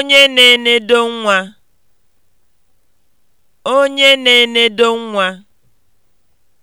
Onye na-enedo nwa. Onye na-enedo nwa